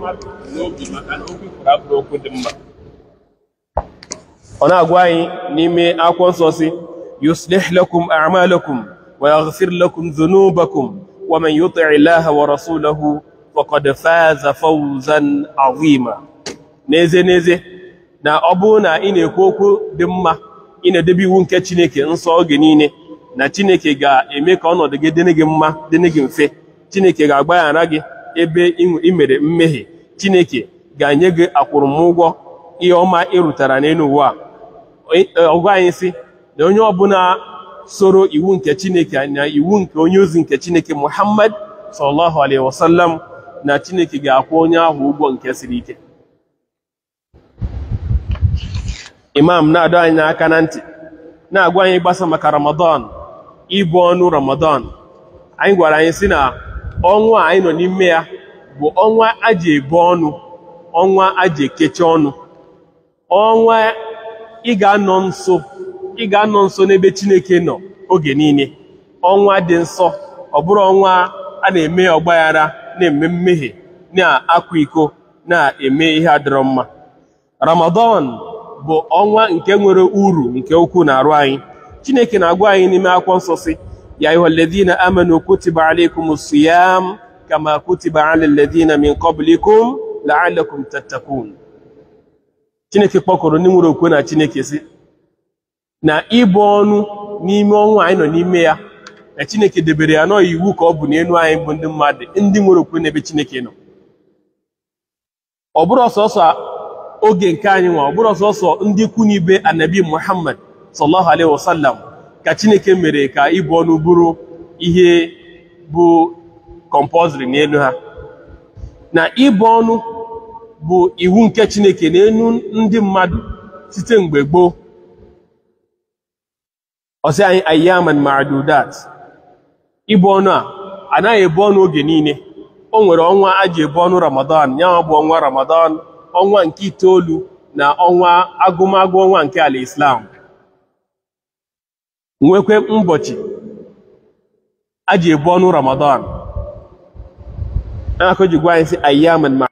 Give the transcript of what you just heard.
mmadụ n'obi maka na okwu kwuru abụrụ okwu dị mma ọ na-agwa anyị n'ime akwụkwọ nsọ si yuslih lakum a'malakum wa yaghfir lakum dhunubakum wa man yuti ilaha wa rasulahu faqad faza fawzan azima n'ezie n'ezie na ọ bụ na ị na-ekwu okwu dị mma ị na-edebe iwu nke Chineke nsọ oge niile na Chineke ga-eme ka ọnọdụ gị dịrị gị mma dịrị gị mfe Chineke ga-agbaghara gị ebe ị mere mmehie chineke ga-enye gị akwụrụmụgwọ ihe ọma ịrụtara n'elu ụwa ọgụ e, anyị si na onye ọbụla soro iwu nke chineke na iwu nke onye ozi nke chineke muhammad sallallahu alaihi wasallam na chineke ga-akwụ onye ahụ ụgwọ nke siri ike imam na-adọ anyị n'aka na ntị na-agwa anyị gbasa maka ramadan ibu ọnụ ramadan anyị gwara anyị si na ọnwa a anyị nọ n'ime ya bụ ọnwa a ji ebu ọnụ ọnwa a ji ekechi ọnụ ọnwa ị ga-anọ nso ị ga-anọ nso n'ebe Chineke nọ oge niile ọnwa dị nsọ ọ bụrụ ọnwa a na-eme ọgbaghara na-eme mmehie na-akwa iko na-eme ihe adịrọ mma Ramadan bụ ọnwa nke nwere uru nke ukwuu na arụ anyị Chineke na-agwa anyị n'ime akwụkwọ nsọ si يا أيها الذين آمنوا كتب عليكم الصيام كما كتب على الذين من قبلكم لعلكم تتقون Chineke kpọkọrọ ndị nwere okwe na Chineke si na ịbụ ọnụ n'ime ọnwụ anyị nọ n'ime ya na Chineke debere ya nọọ iwu ka ọ bụ n'elu anyị bụ ndị mmadụ ndị nwere okwe n'ebe Chineke nọ ọ bụrụ ọsọsọ oge nke anyị nwa ọ bụrụ ọsọsọ ndị ikwu n'ibe anabi Muhammad sallallahu alaihi wasallam ka chineke mere ka ịbụ ọnụ bụrụ ihe bụ kompoziri n'elu ha na ịbụ ọnụ bụ iwu nke chineke n'elu ndị mmadụ site mgbe gboo ọsị anyị ayyaman ịbụ ọnụ a anaghị ebu ọnụ oge niile o nwere ọnwa a ji ebu ọnụ ramadan ya bụ ọnwa ramadan ọnwa nke itoolu na ọnwa agụmagụ ọnwa nke ala islam nwekwe ụbọchị a ji ebu ọnụ ramadan na-akụ ji gwa anyị si Ma.